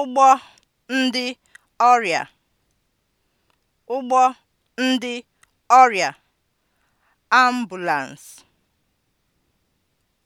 ụgbọ ndị ọrịa ụgbọ ndị ọrịa (ambulance)